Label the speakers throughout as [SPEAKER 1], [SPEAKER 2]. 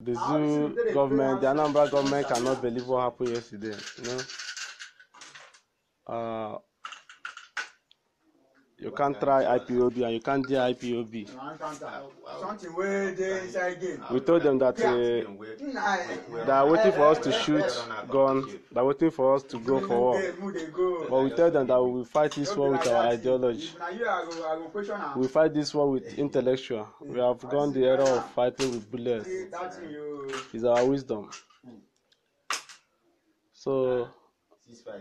[SPEAKER 1] The Zulu government, the Anambra government cannot believe what happened yesterday. No? Uh, you can't try IPOB and you can't do IPOB. Something where they inside game. We told them that uh, they are waiting for us to shoot gun, they are waiting for us to go for war. But we tell them that we will fight this war with our ideology. We fight this war with intellectual. We have gone the era of fighting with bullets. It's our wisdom. So,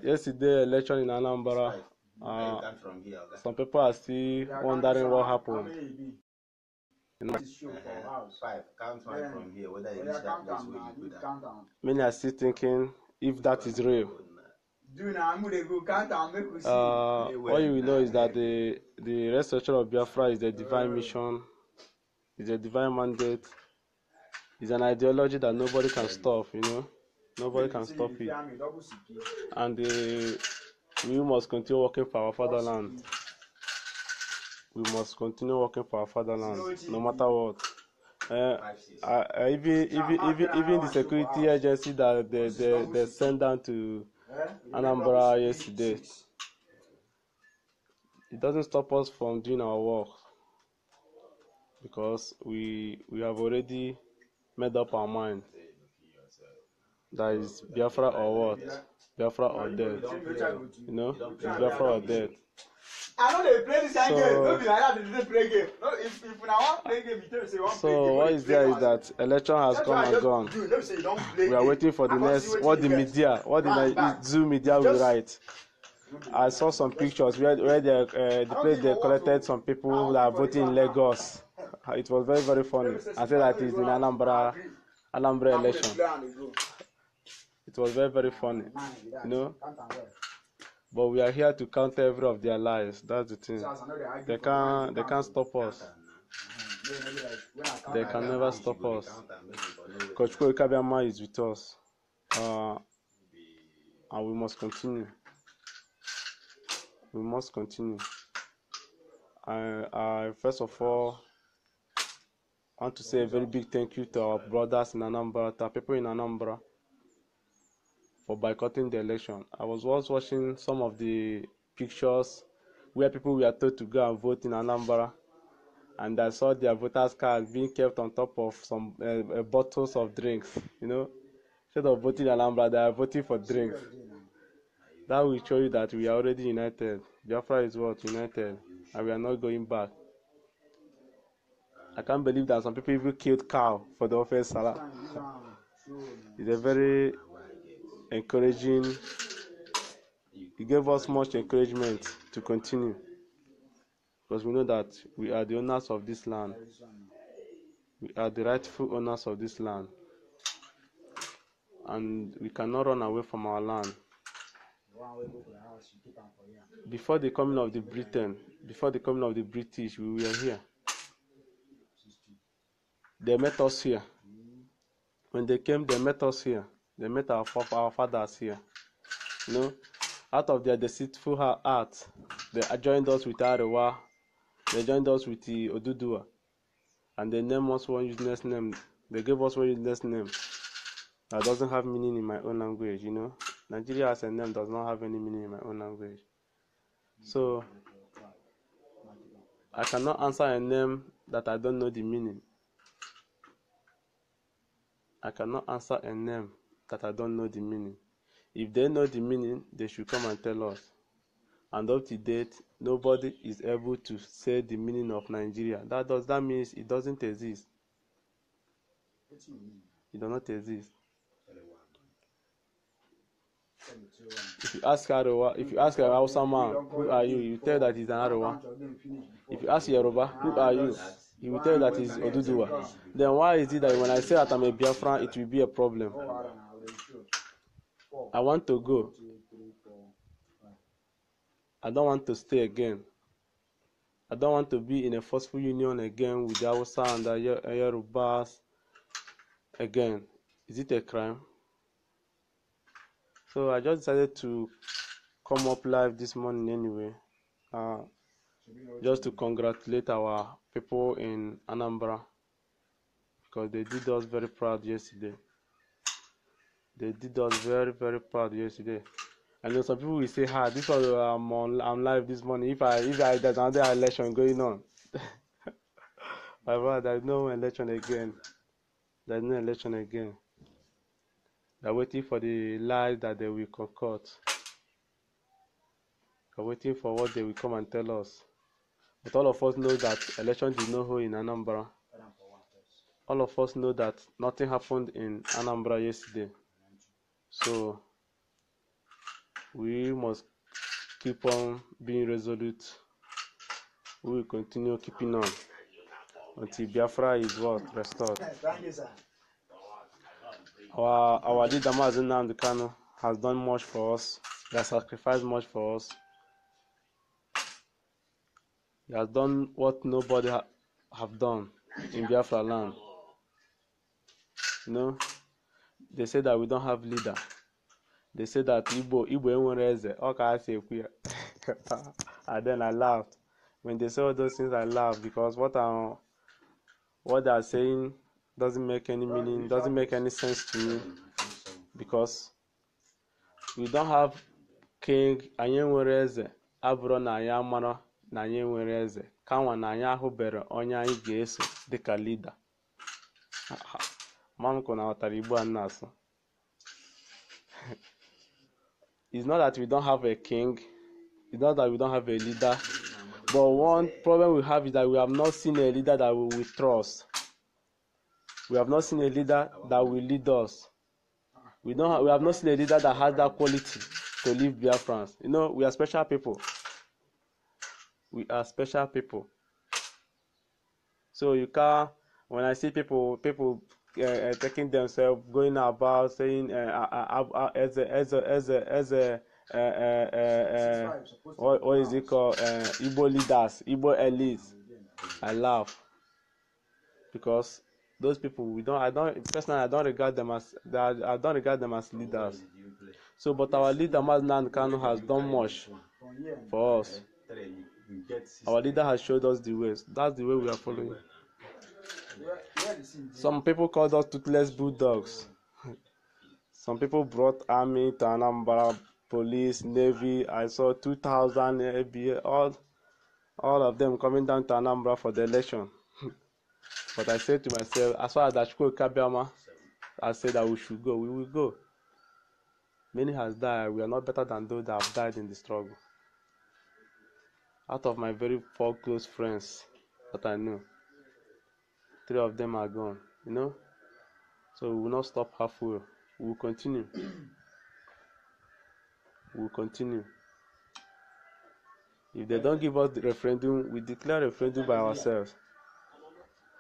[SPEAKER 1] yesterday, election in Anambra. Uh, some people are still wondering what happened. You know, uh-huh. oh Many are still thinking if that is real. Uh, all you will know is that the the resurrection of Biafra is a divine uh. mission, is a divine mandate, is an ideology that nobody can stop. You know, nobody can stop it. And the We must continue working for our fatherland. We must continue working for our fatherland, no matter what. Uh, uh, even even even even the security agency that they they, they sent down to Anambra yesterday, it doesn't stop us from doing our work because we we have already made up our mind. That is Biafra or what? Biafra or death. You know, it's Biafra or death. I know they play this so, game. Don't be like that. They didn't play game. No, if if now wan play game, you tell me say you wan play game. So what is there is that election has come and gone. Do, no, say you don't play we are waiting for the next. What the media, what the Zoom media will write. I saw some pictures where where they uh, the place they collected some people that are voting in Lagos. It was very very funny. I said that is the Anambra Anambra election. It was very, very funny. You know? But we are here to counter every of their lies. That's the thing. They can't they can't stop us. They can never stop us. Coach Kabiyama is with us. Uh, and we must continue. We must continue. I, I first of all I want to say a very big thank you to our brothers in Anambra, to our people in Anambra for boycotting the election. I was once watching some of the pictures where people were told to go and vote in Anambra, and I saw their voters' cards being kept on top of some uh, uh, bottles of drinks. You know, instead of voting in Anambra, they are voting for drinks. That will show you that we are already united. Biafra is what united, and we are not going back. I can't believe that some people even killed cow for the offense salah. It's a very encouraging he gave us much encouragement to continue because we know that we are the owners of this land we are the rightful owners of this land and we cannot run away from our land before the coming of the britain before the coming of the british we were here they met us here when they came they met us here they met our, our fathers here. You know, out of their deceitful heart, they joined us with Arewa. They joined us with the Odudua. And they named us one useless name. They gave us one useless name that doesn't have meaning in my own language, you know. Nigeria as a name does not have any meaning in my own language. So I cannot answer a name that I don't know the meaning. I cannot answer a name that I don't know the meaning. If they know the meaning, they should come and tell us. And up to date, nobody is able to say the meaning of Nigeria. That does that means it doesn't exist. It does not exist. If you ask Arawa, if you ask Hausa man, who are you? You tell that he's an Arawa. If you ask Yoruba, who are you? He will tell you that he's Oduduwa. Then why is it that when I say that I'm a Biafran, it will be a problem? Oh, I want to go. I don't want to stay again. I don't want to be in a forceful union again with son and uh, Yorubas again. Is it a crime? So I just decided to come up live this morning anyway, uh, just to congratulate our people in Anambra because they did us very proud yesterday they did us very very proud yesterday and then some people will say ah this one i'm on i'm live this morning if i if i there's another election going on my brother there's no election again there's no election again they're waiting for the lies that they will concoct they're waiting for what they will come and tell us but all of us know that election did not hold in anambra all of us know that nothing happened in anambra yesterday So we must keep on being resolute. We will continue keeping on until Biafra is what restored. Our our leader Mazin Namdekano has done much for us. He has sacrificed much for us. He has done what nobody ha- have done in Biafra land. You know. they say that we don't have leader they say that igbo igbo enwere eze ọ ka ha ekwu ya and then i laughed when they say all those things i laughed because what i'm what they are saying doesn't make any meaning doesn't make any sense to me because we don't have king anyị nwere eze abụrụ na anyị amara na anyị nwere eze kanwa na anyị ahụbere onye anyị ga-eso dịka leader. Manko ghọtara Igbo a m na it's not that we don't have a king it's not that we don't have a leader but one problem we have is that we have not seen a leader that we will trust we have not seen a leader that will lead us we don't have, we have not seen a leader that has that quality to live lead France. you know we are special people we are special people so you can when I see people people Uh, uh, taking themselves, going about saying, uh, uh, as as as as a uh, what, is it called? Uh, leaders, Igbo elites. I laugh because those people we don't i don't personally i don't regard them as i don't regard them as leaders so but our leader maznan kanu has done much for us our leader has showed us the ways. that's the way we are following Some people called us toothless bulldogs. Some people brought army to Anambra, police, navy. I saw 2,000 ABA, all, all of them coming down to Anambra for the election. but I said to myself, as far as Ashko Kabiama, I said that we should go. We will go. Many has died. We are not better than those that have died in the struggle. Out of my very four close friends that I knew, three of them are gone, you know. So we will not stop halfway. We will continue. we will continue. If they don't give us the referendum, we declare referendum by ourselves.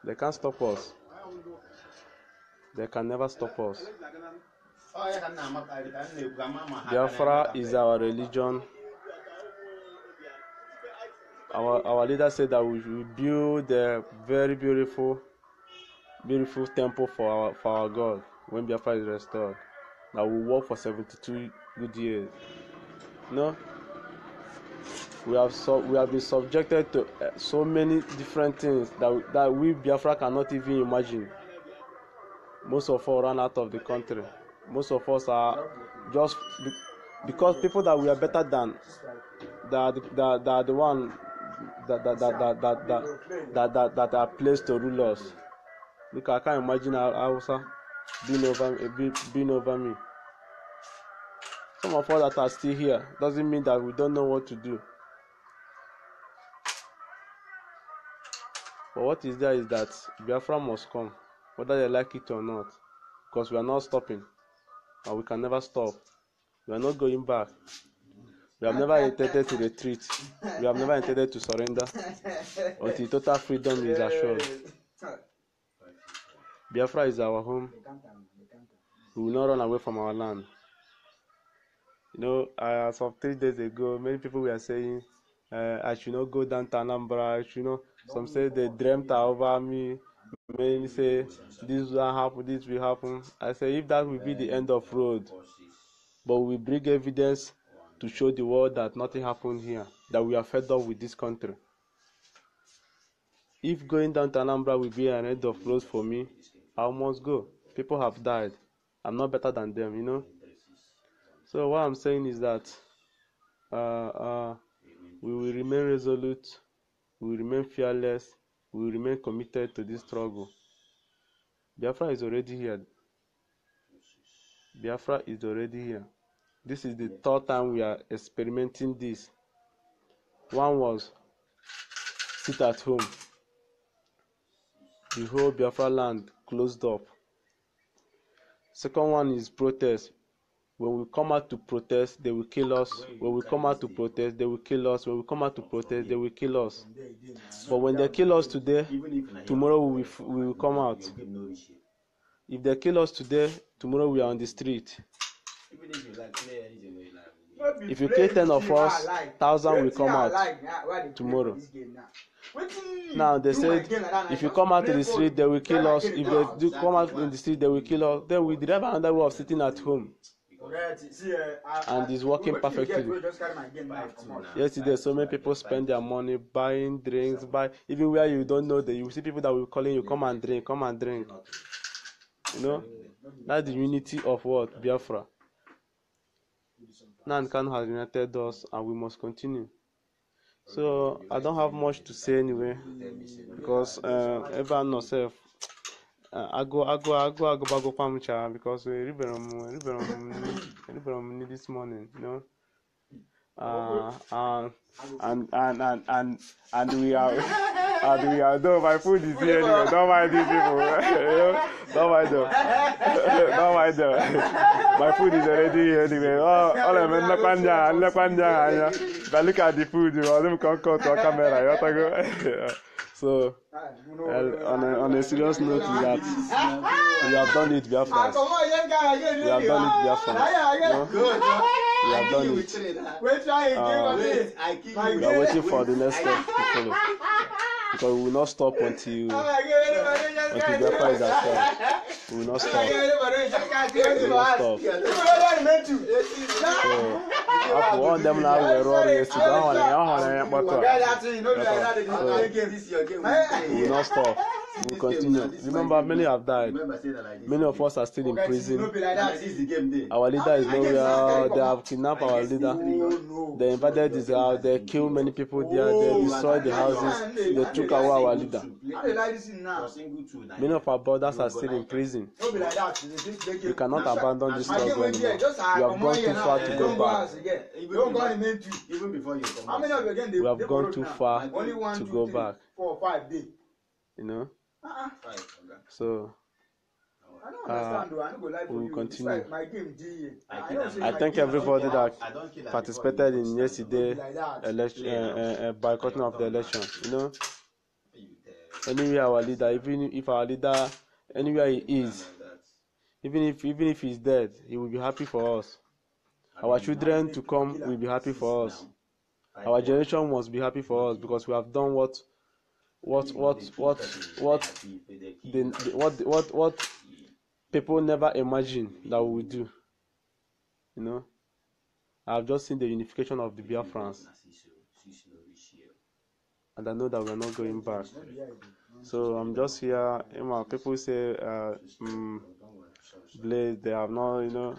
[SPEAKER 1] They can't stop us. They can never stop us. Biafra is our religion. Our, our leader said that we will build a very beautiful beautiful temple for our for our God when Biafra is restored. That we work for seventy-two good years. No, we have so we have been subjected to eh, so many different things that that we Biafra cannot even imagine. Most of us ran out of the country. Most of us are just because people that we are better than that that that the one that that that that that that that, that, that are placed to rule us. Look, I can't imagine Hausa being over, eh, being over me. Some of us that are still here doesn't mean that we don't know what to do. But what is there is that Biafra must come, whether they like it or not, because we are not stopping, and we can never stop. We are not going back. We have never intended to retreat. We have never intended to surrender until total freedom is assured. Biafra is our home. We will not run away from our land. You know, uh, as of three days ago, many people were saying, uh, I should not go down to Anambra. I should not. Some say they dreamt over me. Many say, this will happen, this will happen. I say, if that will be the end of road, but we bring evidence to show the world that nothing happened here, that we are fed up with this country. If going down to Anambra will be an end of road for me, I must go. People have died. I'm not better than them, you know. So what I'm saying is that uh, uh, we will remain resolute, we will remain fearless, we will remain committed to this struggle. Biafra is already here. Biafra is already here. This is the third time we are experimenting this. One was sit at home. The whole Biafra land closed up. Second one is protest. When we come out to protest, they will kill us. When we come out to protest, they will kill us. When we come out to protest, they will kill us. But when they kill us today, tomorrow we will, we will come out. If they kill us today, tomorrow we are on the street if you kill ten of us thousand will come out tomorrow now they said if you come out in the street they will kill us if they do come out in the street they will kill us then we did have another way of sitting at home uh, and it's working perfectly yesterday so many people spend their money buying drinks buy even where you don't know that you see people that will calling you come and drink come and drink you know that's the unity of what biafra. Nankan has united us and we must continue. So I don't have much to say anyway because uh, everyone herself. Agụ agụ agụ agụbagokwa m chaa because eribere m eribere m nri this morning. You know? Uh, uh, and, and and and and we are and we are no my food is here anyway don't mind these people don't mind them don't mind them my food is already here anyway oh ọlọ mi nlekwa ndị agha nlekwa ndị agha anya but look at the food You ọdụm ka nkọ tụọ kamera ya ọtago so uh, on a on a serious note is that we have done it We have biafra ah, we have done it We have biafra. No? We have done it. Uh, we are waiting, for the next step to follow. Because we will not stop until oh until Biafra oh is at We will not stop. We will not stop. So, one of them now were roaring yesterday. That one, that one, that one, that We will not stop we continue. Remember, many have died. Many of us are still in prison. Our leader is nowhere. They have kidnapped our leader. They invaded his house. They kill many people there. They oh, destroy the houses. They took away our leader. Many of our brothers are still in prison. We cannot abandon this struggle anymore. We have gone too far to go back. We have gone too far to go back. You know? Uh-uh. So. I uh, we'll Continue. I, thank everybody that participated in yesterday election yeah, eh, uh, uh, eh, uh, eh, boycotting of the election. You know, anywhere our leader, even if our leader, anywhere he is, even if even if he's dead, he will be happy for us. Our children to come will be happy for us. Our generation must be happy for us because we have done what what what what what the, what what what people never imagine that we do. You know, I've just seen the unification of the Biafrans, and I know that we're not going back. So I'm just here. You know, people say, uh, um, Blade, they have not, you know.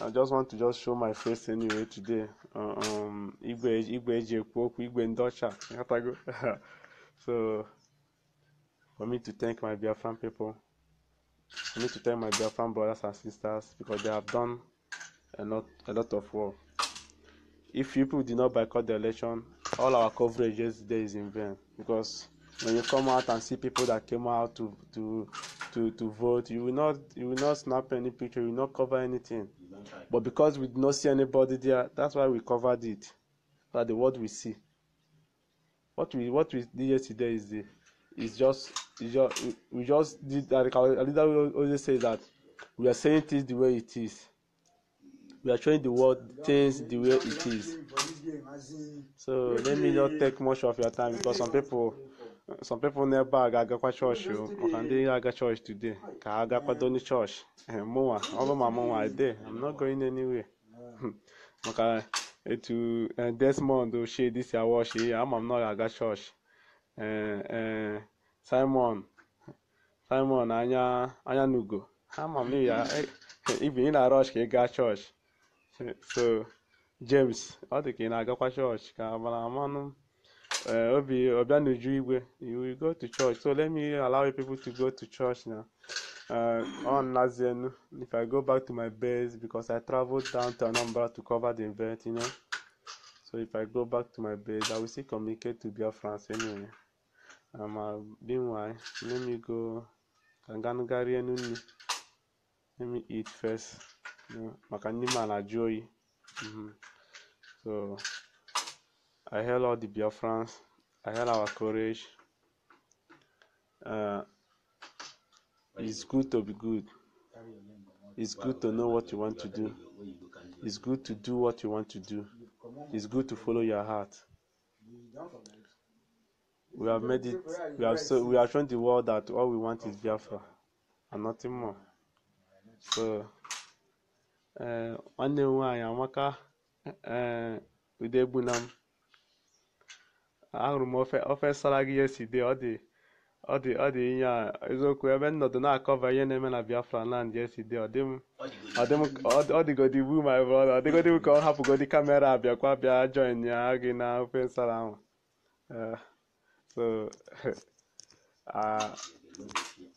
[SPEAKER 1] I just want to just show my face anyway today. Uh, um, Igwe, Igwe, Igwe, Igwe, So, for me to thank my Biafran people, for me to thank my Biafran brothers and sisters because they have done a lot, a lot of work. If people did not boycott the election, all our coverage yesterday is in vain because when you come out and see people that came out to to to to vote you will not you will not snap any picture you will not cover anything but because we did not see anybody there that's why we covered it so that the world we see what we what we did yesterday is the is just is just we, we just did like our leader always say that we are saying things the way it is we are showing the world things the way it is so let me not take much of your time because some people some people n'ebe a ga-agakwa chọọchị o oh. maka ndị ga-aga chọọchị today ka ha gakwado ndị chọọchị mụnwa ọ bụ ma mụnwa ede i'm not going anywhere maka etu eh, Desmond ochie disiawashi ya ama m na ọ ga-aga chọọchị ee eh, eh, Simon Simon anya anya n'ugo ama m na ibi e, e, ị na ọchị ka ị gaa chọọchị so James ọ dị ka ị na-agakwa chọọchị ka mara amanụ obi ọbịa n'uju igwe you go to church so let me allow you people to go to church now uh, on Nazienu, if I go back to my base, because I traveled down to Anambra to cover the event, you know. So if I go back to my base, I will still communicate to Biafrans anyway. Um, uh, meanwhile, let me go. Kanganugari enuni. Let me eat first. Maka ndị ma na-ajụ oyi. Mm-hmm. So, I hail all the Biafrans. I hail our courage. Uh, It's good to be good. It's good to know what you want to do. It's good to do what you want to do. It's good to follow your heart. We have made it. We have so we have shown the world that all we want is Biafra, and nothing more. So, eh, nwanne m nwaanyị amaka eh, eh, udebunam ahụrụ m ofe ofe sara salary yesterday ọ dị. ọ dị ọ dị ihe a eziokwu ebe m na-akọva ihe na-eme na Biafra land esi dị ọ dịgodi wu my brother ọ dịgodi ka ọ hapụgodi kamera abịakwa bịa join ya gị na eh, ah, ofe nsala ahụ so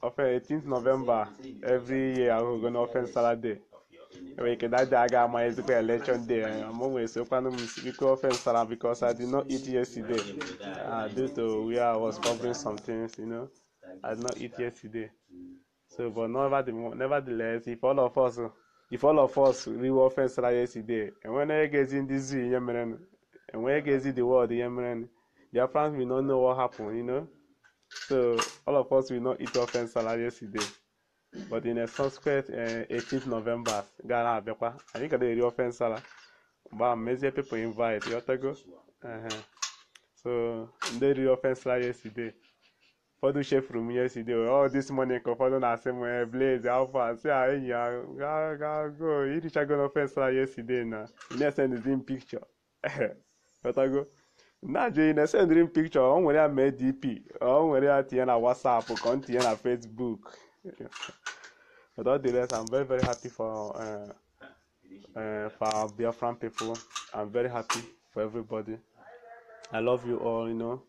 [SPEAKER 1] ofe 18 November every year ahụgo na ofe nsala day day aga ama ezigbo election day mụ wee sokwanụ m biko ofe nsara because I di not eat yesterday uh, due to where I was covering some things you know I did not eat yesterday so but never nevertheless if all of us if all of us riwe ofe nsara yesterday enwe enweghị ndị zoo ihe merenụ enweghị the world ihe merenụ their friends will not know what happened you know so all of us will not eat ofe nsara yesterday but in a subsequent 18th eh, november ga na-abịakwa anyị ga na-eri ofe nsala mgbe ahụ mezie people invite yọtago so ndị riri ofe nsala yesterday ụfọdụ chefuru m yesterday ọ oh, this morning ka ụfọdụ na-asị m eh, blaze alfa si a ah, enyi go ah, ga go go irichago ofe nsala yesterday na na-esendzi m picture yọtago na-ajụ na esendiri m picture ọ nwere ya mee dp ọ nwere ya tinye na whatsapp ka ọ tinye na facebook Without all the rest, I'm very, very happy for uh, uh, for our Biafran people. I'm very happy for everybody. I love you all, you know,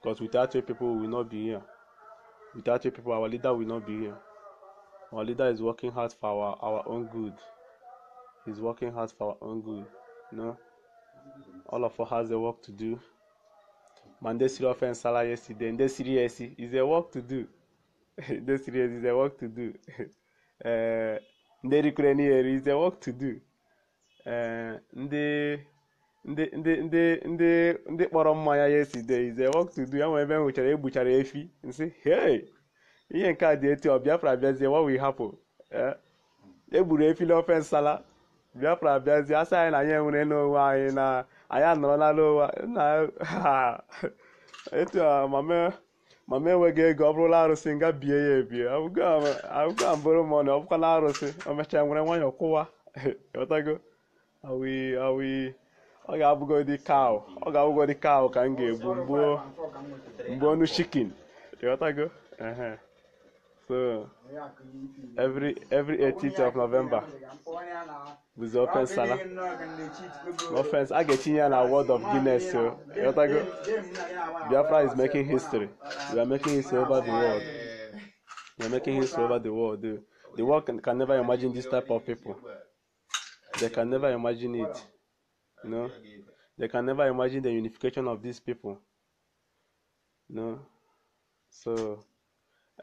[SPEAKER 1] because without you people, we will not be here. Without you people, our leader will not be here. Our leader is working hard for our, our own good. He's working hard for our own good, you know. All of us has a work to do. Monday, Siro, and Salah yesterday, and this is a work to do. no serious is a work to do eh, ndị rikwere n'ihere is a work to do ndị eh, ndị ndị ndị ndị ndị kpọrọ mmanya ya eside is a work to do ya nwere ebe m hụchara egbuchara efi nsị hey ihe nke a dị etu ọ Biafra bịazie wa we hapụ egburu eh, e efi n'ofe nsala Biafra bịazie asị anyị na anyị enwere n'onwe anyị na anyị anọrọla n'ụwa etu mama ma m enweghị ego ọ bụrụla arụsị nga bie ya ebie abụgo mbụrụ m ọnụ ọ bụkwa na arụsị o mechaa nwere nwanyị kwụwa ghọtago ọ ga-abụgodị kaụ ọ ga-abụgodị kaụ ka m ga-egbu mgbuo ọnụ chikin So every every 18th of November, we open Salah. Open. offense, I get you an award of Guinness. So Biafra is making history. We are making history over the world. We are making history over the world. The world can, can never imagine this type of people. They can never imagine it. You know, they can never imagine the unification of these people. You know, so.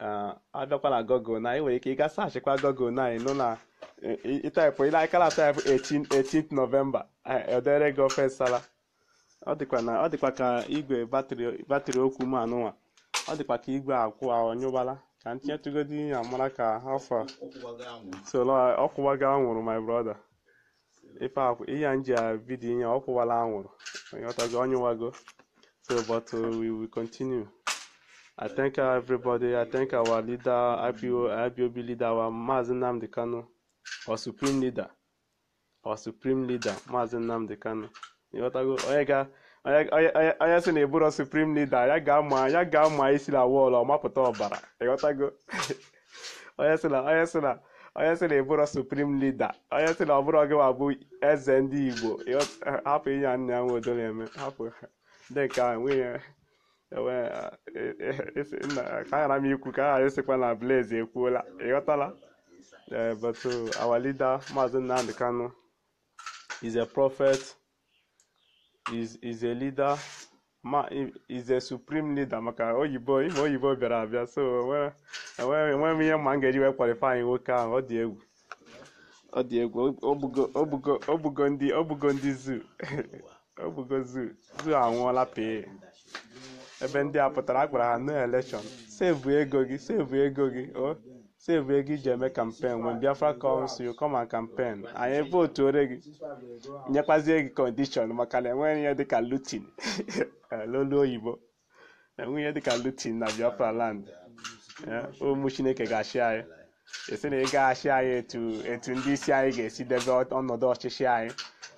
[SPEAKER 1] A abịakwa na gọgụl na ị nwere ike ịga sachịkwa gọgụl na anyị nụ na ịtaịpụ ile aka taịpụ 18 novemba edere gị ofe nsala ọ dịkwa ka igwe batrị okwu m anụnwa ọ dịkwa ka igwe akwụ anyụbala ah, ka ntinyetụgodi ya mara ka afọ ah, ọkwụwaga anwụrụ my brother ife ihe nji vidiyo ya ọkwụwala anwụrụ onye ọtago ọnyụwago so but uh, we will continue I thank everybody. I thank our leader, IPO, IPOB leader, our Mazen Namdi Kano, our supreme leader, our supreme leader, Mazen Namdi Kano. onye ga onye sị na eburo supreme leader ya ga-ama ya ga-ama isi na wall ọmapụta ọbara onye si na onye si na onye na eburo supreme leader onye sị na ọ bụrụ gị bụ eze ndị Igbo hapụ inye nna ya nwe odo hapụ ndị nke a nwunye aghara m ikwu ka aghara esikwa na Blaze ekwuola ịghọtala e eh, but oh, our leader Maazị Nnamdi Kanu is a prophet is is a leader ma is a supreme leader maka oyibo ime oyibo bịara abịa so enwere m ihe ma m ga-eji wee kwalifanyị nwoke ahụ ọ dị egwu ọ dị egwu obugo ndị zoo obugo zoo zoo anwụọla pee ebe ndị a pụtara a ha no elekshọn sevu ego gị sevu ego gị o sevu ego iji eme kampen when biafra comes kọma come anyị campaign anyị votuore gị nyekwazie gị kọndishọn maka na enweghị ihe dịka lutin eh, lolu oyibo enweghị ihe dịka lutin na biafra land eh, ụmụ chineke ga-achị anyị esi na ị gaghachị anyị etu ndị isi anyị ga-esi debe ọnọdụ ọchịchị anyị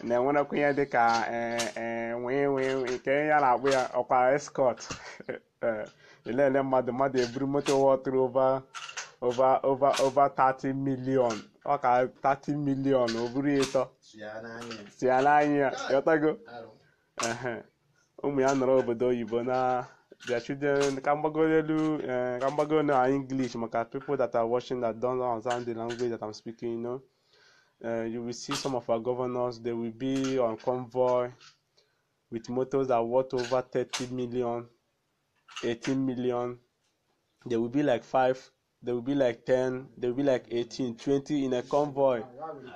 [SPEAKER 1] na-enwerekwa ihe dịka eh, eh, nwee nke ya na-akpụ ya ọkwa escort elele eh, mmadụ mmadụ eburu moto wọtụrụ over over over over 30 million ọka 30 million o buru ịtọ ya n'anya ya yọtago ụmụ ya nọrọ obodo oyibo na their children ka ka na maka people that are watching that don't understand the language that uh, you will see some of our governors they will be on convoy with motors that worth over thirty million eighteen million there will be like five there will be like 10, there will be like 18, 20 in a convoy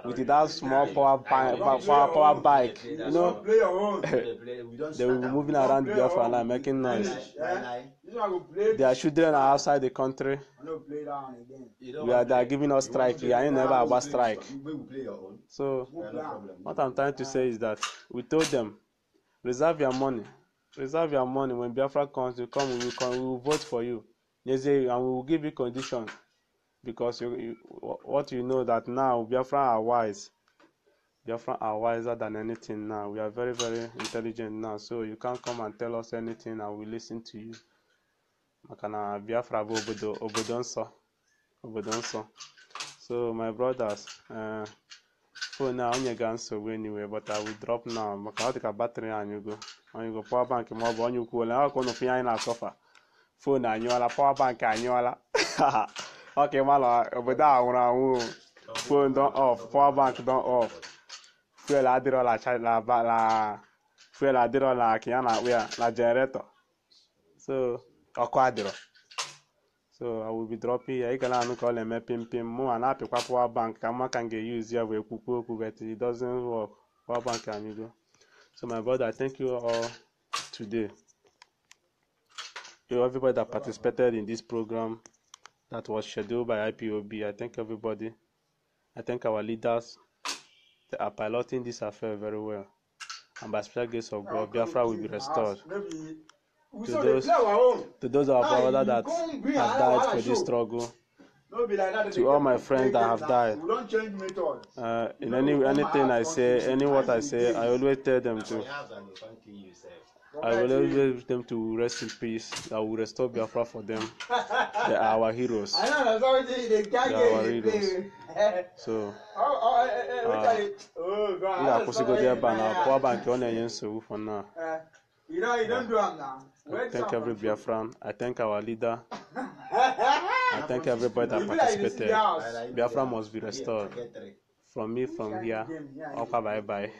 [SPEAKER 1] with that small power, bi- power, power bike. You know, they will be moving around Biafra and making noise. Their children are outside the country. We are, they are giving us strike We are never about strike. So, what I'm trying to say is that we told them, reserve your money. Reserve your money. When Biafra comes, you come, we will, come, we will vote for you. Yes, and eh, we will give you condition because you, you, what you know that now Biafra are wise. Biafra are wiser than anything now. We are very, very intelligent now. So you can't come and tell us anything and we listen to you. maka Biafra obodo obodo nsọ So my brothers, uh, eh, now a onye ga nsogbu anyway but I will drop now maka ọ dị ka batrị You go. Anyị go power bank ma ọ bụ onye ukwu i Ọ ka ụnụ fụ anyị foonu anyụọla pọwa bank anyụọla ọka ịma na obodo a nwụrụ anwụ foonu don off pọwa bank don off fuel adịrọla na fuel adịrọ ka ya na-akpụ ya na jeneretọ so ọkụ adịrọ so i will be dropping ya ịga na-anụ ka ọ na-eme pim pim mụ ma na-apịkwa pawa bank ka mma ka m ga-eyuzi ya bụ ekwukwu okwu but it doesn't work pawa bank anyụgo so my brother thank you all today to everybody that participated in this program that was scheduled by IPOB. I thank everybody. I thank our leaders. that are piloting this affair very well. And by special grace of God, Biafra will be restored. To those, to those of our brothers that have died for this struggle, to all my friends that have died, uh, in any anything I say, any what I say, I always tell them to I will always wish them to rest in peace. I will restore Biafra for them. They are our heroes. I know, that's what they can't They are our heroes. So, ndị akwụsịgodi ebe a na akwụ aba nke ọ na-enye nsogbu for now. Eh, you know, you don't do them now. I thank every Biafran. I thank our leader. I thank everybody that participated. Biafra must be restored. From me, from here, Okay, bye bye.